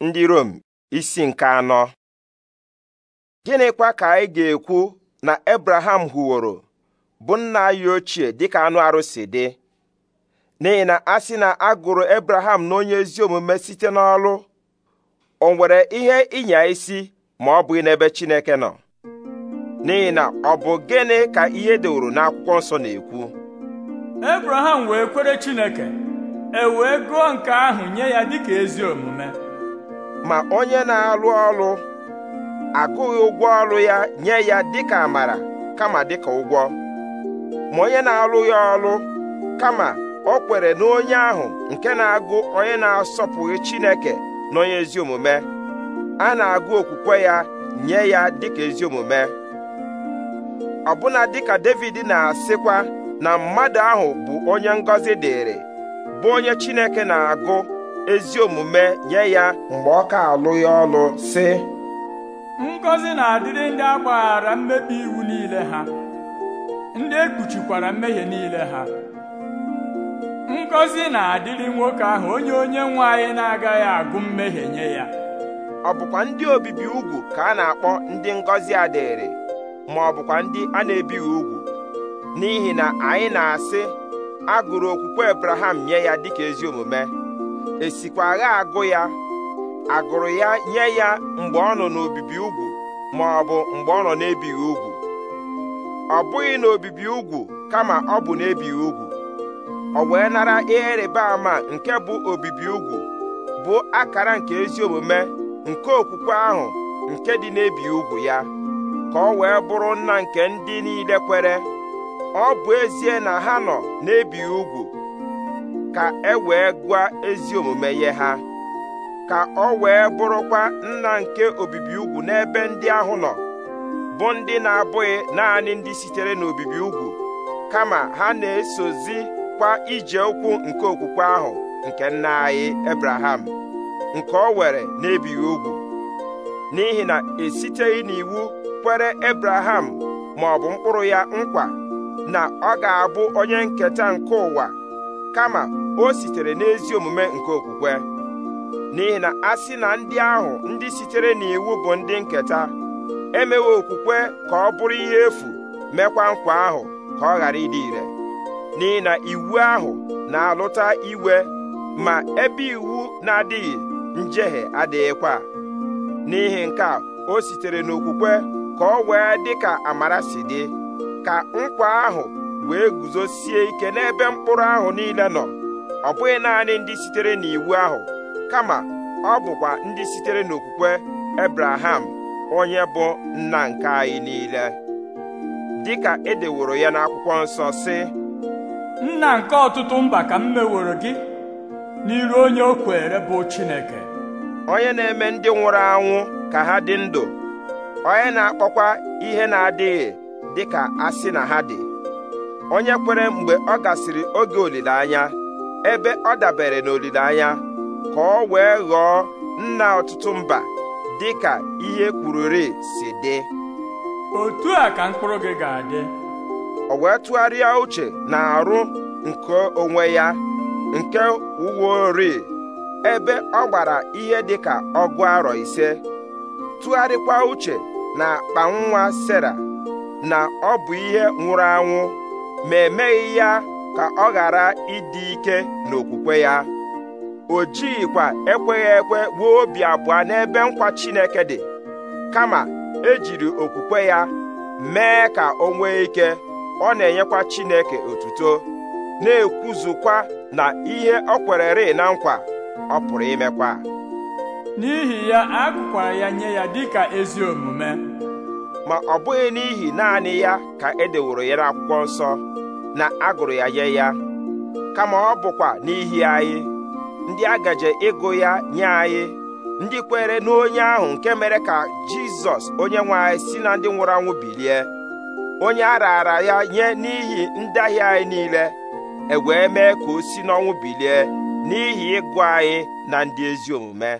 ndị Rom isi nke anọ gịnịkwa ka anyị ga-ekwu na Abraham hụworo bụ nna anyị ochie dịka anụ arụsị dị n'ihi na a sị na a gụrụ Abraham na onye ezi omume site n'ọlụ o nwere ihe ịnya isi ma ọ bụghị n'ebe Chineke nọ n'ihi na ọ bụ gịnị ka ihe deworo n'akwụkwọ nsọ na-ekwu Abraham wee kwere Chineke e wee gụọ nke ahụ nye ya dịka ezi omume ma onye na-alụ ọrụ agụghị ụgwọ ọlụ ya nye ya dịka amara kama dịka ụgwọ ma onye na-alụghị ọrụ kama ọ kwere na onye ahụ nke na-agụ onye na-asọpụghị Chineke na onye ezi omume a na-agụ okwukwe ya nye ya dịka ezi omume ọbụna dịka David na-asịkwa na mmadụ ahụ bụ onye ngọzi dịrị bụ onye Chineke na-agụ ezi omume nye ya mgbe ọ ka alụ ya ọlụ sị ngọzi na-adịrị ndị agbaghara mmebi iwu niile ha ndị ekpuchikwara mmehie niile ha ngọzi na-adịrị nwoke ahụ onye onye nwe anyị na-agaghị agụ mmehie nye ya ọ bụkwa ndị obibi ugwu ka a na-akpọ ndị ngọzi adịrị ma ọ bụkwa ndị a na-ebighị ugwu n'ihi na anyị na-asị a gụrụ okwukwe Abraham nye ya dịka ezi omume esikwa agụ ya agụrụ ya nye ya mgbe ọ nọ n'obibi ugwu ma ọ bụ mgbe ọ nọ n'ebighị ugwu ọ bụghị n'obibi ugwu kama ọ bụ n'ebighị ugwu ọ wee nara ihe rịba ama nke bụ obibi ugwu bụ akara nke ezi omume nke okwukwe ahụ nke dị n'ebighị ugwu ya ka ọ wee bụrụ nna nke ndị niile kwere ọ bụ ezie na ha nọ n'ebighị ugwu ka e wee gụọ ezi omume nye ha ka ọ wee bụrụkwa nna nke obibi ugwu n'ebe ndị ahụ nọ bụ ndị na-abụghị naanị ndị sitere n'obibi ugwu kama ha na esozi kwa ije ụkwụ nke okwukwe ahụ nke nna anyị Ebraham nke ọ were n'ebighị ugwu n'ihi na esiteghị n'iwu kwere Ebraham ma ọ bụ mkpụrụ ya nkwa na ọ ga-abụ onye nketa nke ụwa kama o sitere n'ezi omume nke okwukwe n'ihi na a sị na ndị ahụ ndị sitere n'iwu bụ ndị nketa emewe okwukwe ka ọ bụrụ ihe efu mekwa nkwa ahụ ka ọ ghara ịdị ire n'ihi na iwu ahụ na-alụta iwe ma ebe iwu na-adịghị njehie adịghịkwa n'ihi nke a o sitere n'okwukwe ka ọ wee dị ka amara si dị ka nkwa ahụ wee guzosie ike n'ebe mkpụrụ ahụ niile nọ ọ bụghị naanị ndị sitere n'iwu ahụ kama ọ bụkwa ndị sitere n'okwukwe Ebraham onye bụ nna nke anyị niile dịka edeworo ya n'akwụkwọ nsọ sị nna nke ọtụtụ mba ka m meworo gị n'iru onye o kwere bụ Chineke onye na-eme ndị nwụrụ anwụ ka ha dị ndụ onye na-akpọkwa ihe na-adịghị dịka asị na ha dị onye kwere mgbe ọ gasịrị oge olileanya ebe ọ dabere n'olileanya ka ọ wee ghọọ nna ọtụtụ mba dị ka ihe kwururi si dị otu a ka mkpụrụ gị ga-adị o wee tụgharịa uche na arụ nke onwe ya nke uweori ebe ọ gbara ihe dị ka ọgụ arọ ise tụgharịkwa uche na akpa nwa na ọ bụ ihe nwụrụ anwụ ma emeghị ya ka ọ ghara ịdị ike n'okwukwe ya o jighịkwa ekweghị ekwe wuo obi abụọ n'ebe nkwa Chineke dị kama ejiri okwukwe ya mee ka o nwee ike ọ na-enyekwa Chineke otuto na-ekwuzukwa na ihe ọ kwere kwererị na nkwa ọ pụrụ imekwa n'ihi ya akụkwara ya nye ya dịka ezi omume ma ọ bụghị n'ihi naanị ya ka e deworo ya n'akwụkwọ nsọ na agụrụ ya nye ya kama ọ bụkwa n'ihi anyị ndị agaje ịgụ ya nye anyị ndị kwere n'onye ahụ nke mere ka jizọs onye nwe anyị si na ndị nwụrụ anwụ bilie onye a raara ya nye n'ihi ndị ahịa anyị niile e wee mee ka o si n'ọnwụ bilie n'ihi ịgụ anyị na ndị ezi omume